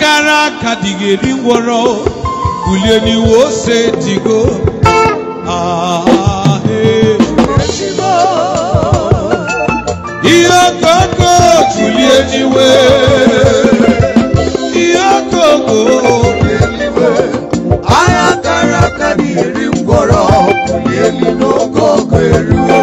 gara aka dịghị kule ni n'iwu ose digo ihe okoko julie n'iwe ihe okoko ahịa gara aka dịghị ngwọrọ bulie n'oge ogo eruo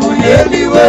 bulie n'iwe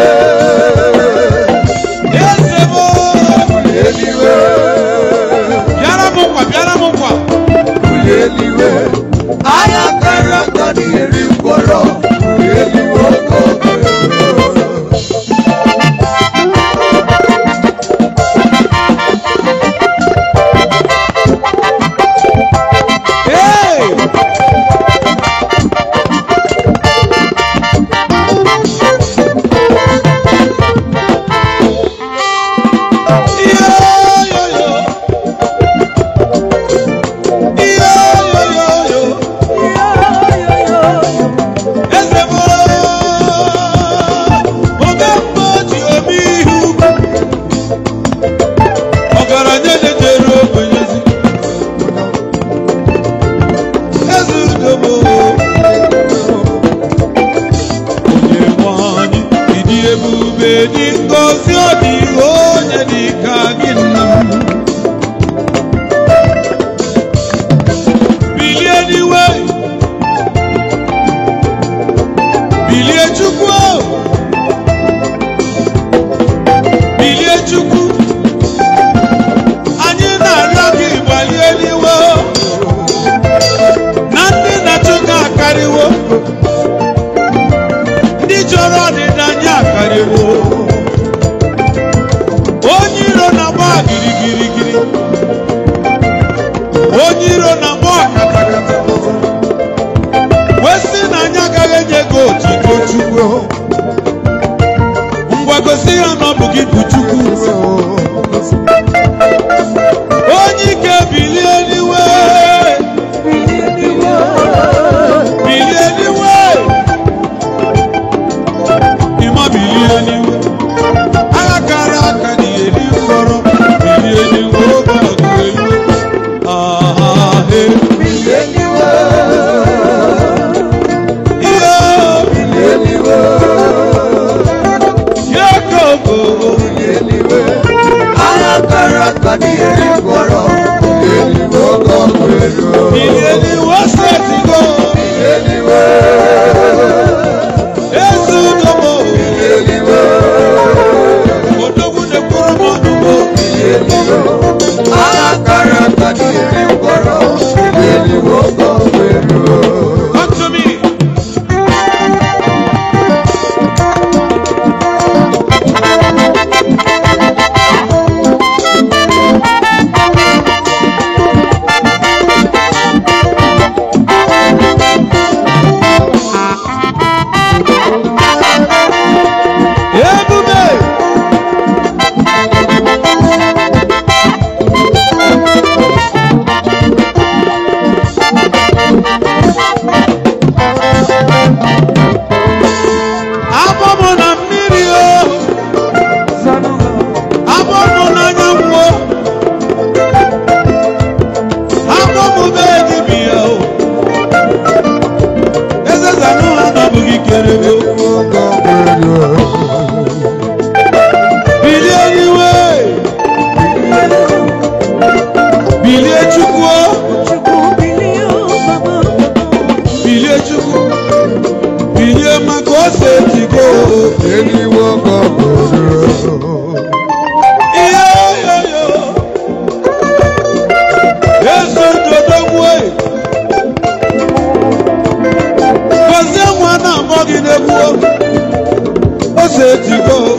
steeti go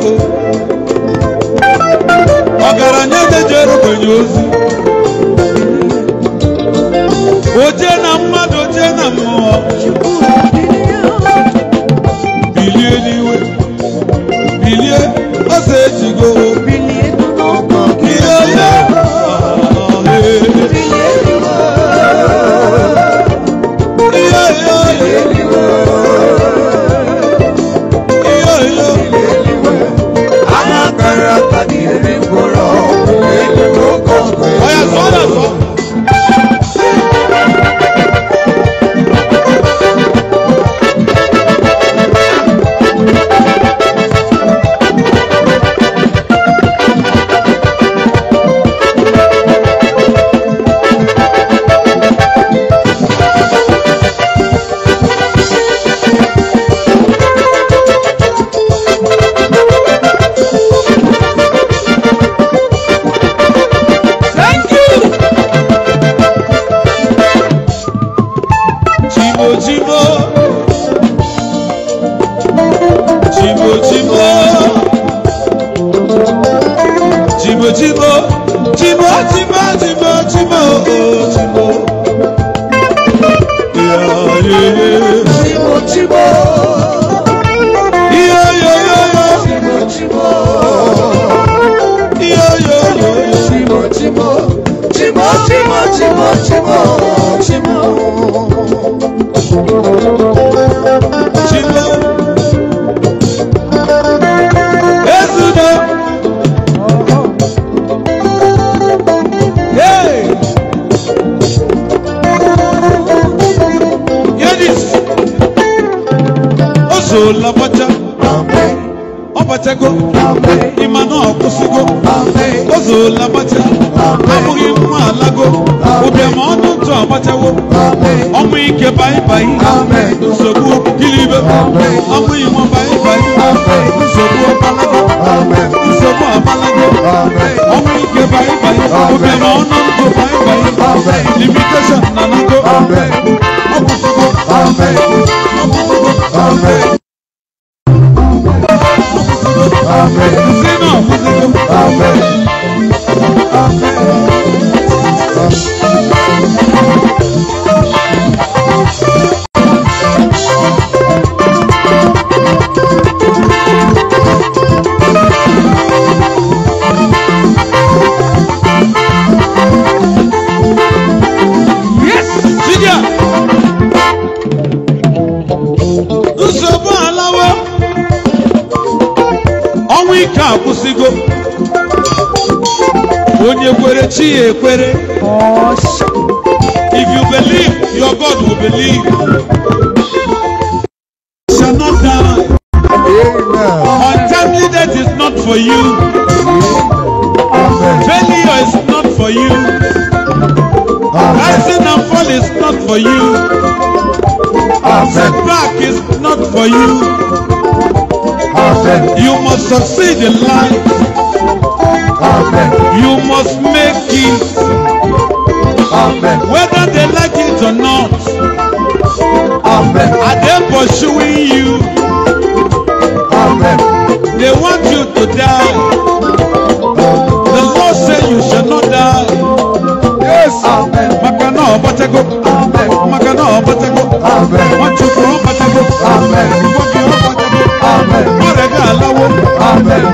ọgaranya eze jere ogbenye ozi ojie na mmadụ ojie na mmụọ bilie n'iwe bilie ọsọ ejigo chibo chibo sego imana ọkwụsịgo ozuola gbacha abụghị mma alago ụbịama ọnụ ntụ agbachawo ọnwụ ike baibai nsogbu dilibe ọnwụ inwe baibai nsogbu ọbalago nsogbu abalago ọnwụ ike baibai ụbịama ọnụ ntụ baibai limitation na nago If you believe, your God will believe. You shall not die. Untimely death is not for you. Failure is not for you. Rising and fall is not for you. Setback is not for you. You must succeed in life. You must whether they like it or not. Amen. Are they pursuing you? Amen. They want you to die. The Lord said you shall not die. Yes. Amen. Makana obatego. Amen. Makana obatego. Amen. Machukwu obatego. Amen. Iwobi obatego. Amen. Ọrẹ̀gá aláwọ̀. Amen.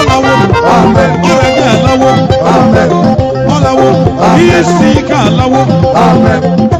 Ọláwọ̀. Amen. Ọrẹ̀gá aláwọ̀. Amen. Ọláwọ̀. Iye sí ká aláwọ̀. Thank you.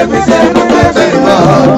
every day, every day, every day.